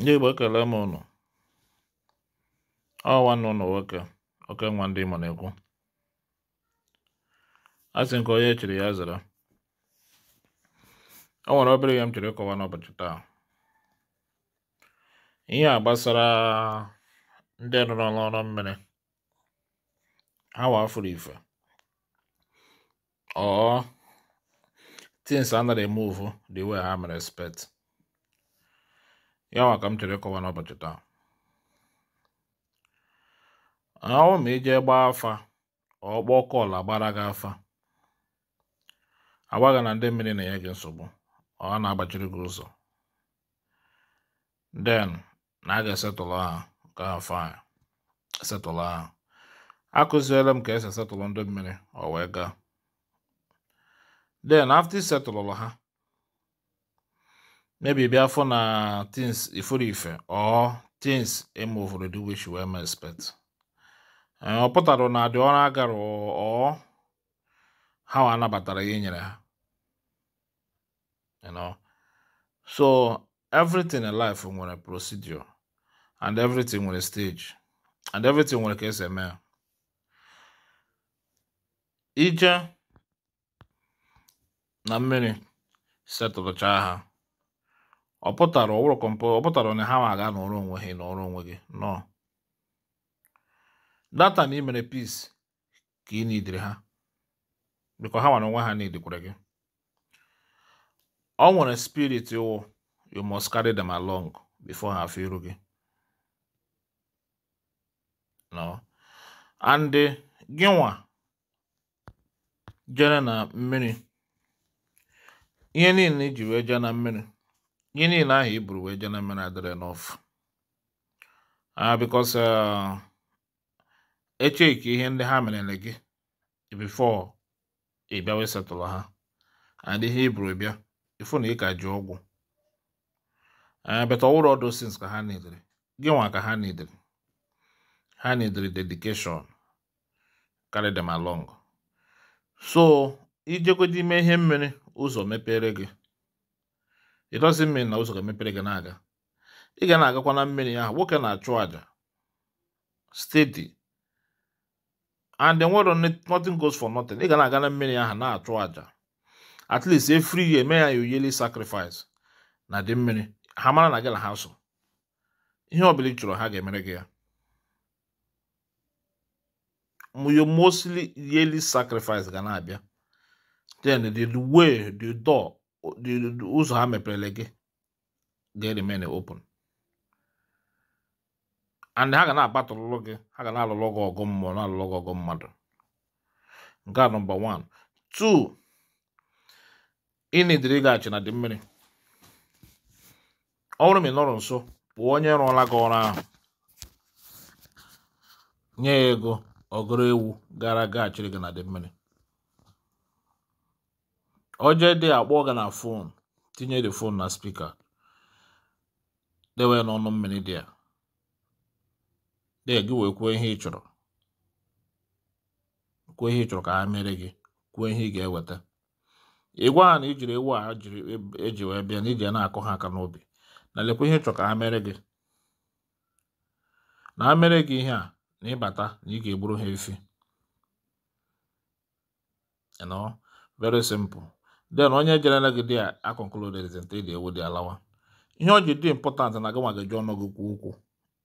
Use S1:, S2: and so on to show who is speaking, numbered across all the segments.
S1: ndị Igbo ekele m ụnụ ọ nwanne ụnụ nwoke oke nwa ndị ịmụ na-ekwu a sị nke onye chiri ya zara o nwere obere ihe m chiri ịkọwa n'ụbọchị taa ihe a gbasara ndị rụrụ ọrụ mmiri ha wafuru ife ọ things anaghị emuvu dị iwe ha mere spet. yawa ka m chere ịkọwa n'ụbọchị taa ahụ ma ije gbaa afa ọkpọ ọla gbara gị afa agwaghị na ndị mmiri na enye gị nsogbu ọ na-agbachiri gị ụzọ den na a ga-esetụlụ ha nke afa a ha akụziela m ka esi setụlụ ndị mmiri ọ wee gaa den afta isetụlụlụ ha maybe bịa afọ na tins ifuru ife tins uh, things eme obodo which wee may expect ọ pụtara na dị ọrụ agara ọ ha anabatara ya nyere ha so everything in life nwere procedure and everything nwere stage and everything nwere ka esi eme ije na mmiri setụlụchaa ha ọ pụtara ụlọ kọmpụ ọ pụtara onye ha ma aga n'ọrụ onwe ha n'ọrụ onwe gị nọ data na imere peace ka ị nidiri ha biko ha nwere onwe ha nidikwara gị ọ nwere spirit ụwụ you must carry them along before ha afọ iru gị no and gịnwa jere na mmiri ihe niile iji wee jee na mmiri ihe niile ahụ i buru wee jee na mmiri adịrị n'ofu bikos echeki ihe ndị ha merere gị bifo ị bịa wee setụlụ ha and ihe i buru bịa ifu na ị ka ji ọgwụ beta ọwụrụ ọdụ sins ka ha nidiri gị nwa ka ha nidiri ha nidiri dedikeshọn carry them along so ijekwa n'ime ihe mmiri ụzọ mepere gị it doesn't mean na ụzọ ga-emepere gị na-aga ị ga na-agakwa na mmiri ahụ nwoke na-achụ àjà steady and the world nothing goes for nothing ị ga na-aga na mmiri ahụ na-achụ àjà at least every year mee ya your sacrifice na dị mmiri ha mara na gị na ha so ihe ọbụla ị ha ga-emere gị ya your mostly yearly sacrifice ga na-abịa then the way the door ụzọ ha mepere gị ga-remain open and ha ga na-abatụlụ gị ha ga na-alụlụ gị ọgụ mmụọ na-alụlụ gị ọgụ mmadụ nke a nọmba 1 2 ịnidiri gaghachi na dị mmiri ọ bụrụ ma ị nọrọ nso pụọ onye rụọla gị ọrụ ahụ nye ya ego ọgụrụ ewu gara gaghachiri gị na dị mmiri Ojedị akpọga na fon tinye the fon na spika dewe n'ọnụ mmiri dị ya dee gị wee kwuo ihe ị chọrọ kwuo ihe ị chọrọ ka ha mere gị kwuo ihe ị ga-eweta ịgwa ha na ijiri ewu a eji e wee bịa na iji na-akọ ha aka n'obi na lekwa ihe ị chọrọ ka ha mere gị na ha mere gị ihe a na ịbata na ị ga-egburu ha efi very simple then onye jere negide ya akọnkluded nte dị ewu dị alawa ihe o ji dị impọtant na agawa gaji ọnụgụ kwuo okwu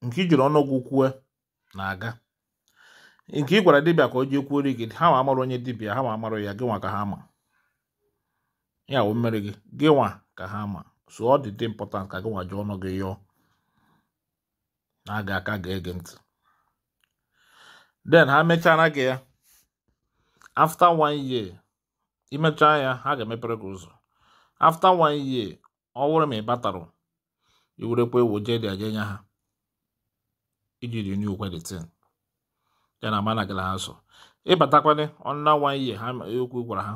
S1: nke ijiri ọnụgụ kwue na-aga nke ị gwara dibịa ka o jee kwuo gị ha ma onye dibịa ha ma amarụ ya gị ka ha ma ya wụ mmiri gị gị ka ha ma so ọ dị dị impọtant ka gị nwa ji ọnụ gị yọọ na-aga aka ga-ege ntị then ha mechara gị ya after one year imecha ya ha ga-emepere gị ụzọ afta one year ọ wụrụ ma ị batarụ iwerekwa ewu jee dị aja nya ha iji renew kwa dị tin ya na mana gị na ha so ịbatakwana ọnụna one year ha ekwu gwara ha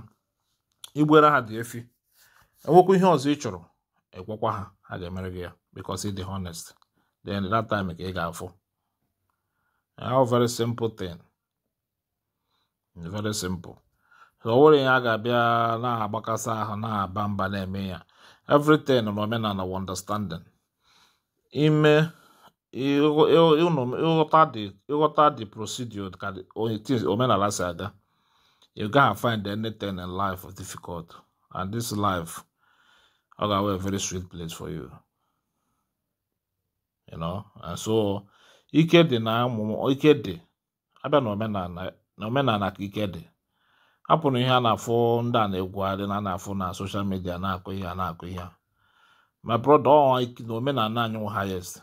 S1: igbuere ha dị efi enwekwa ihe ọzọ ị chọrọ ekwekwa ha ha ga-emere gị ya because ị dị honest then that time ka ị ga-afụ a very simple thing very simple onwere ya ga-abịa na-agbakasị ahụ na-aba mba na-eme ya everything na omenala wa understanding ime ịghọta dị procedure ka omenala si aga you gaghị find anything in life difficult and this life ọ ga-awe a very sweet place for you you know and so ike dị na ụmụ ike dị abịa na omenala ka ike dị hapụrụ ihe a na-afụ ndị a na-egwugharị na na-afụ na soshal midia na-akụ ihe a na-akụ ihe ma brọda na omenala anyị wụ highest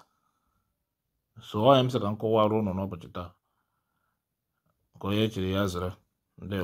S1: so onye m sị ka m kọwara ụnụ n'ụbọchị taa nke onye chiri ya zere ndị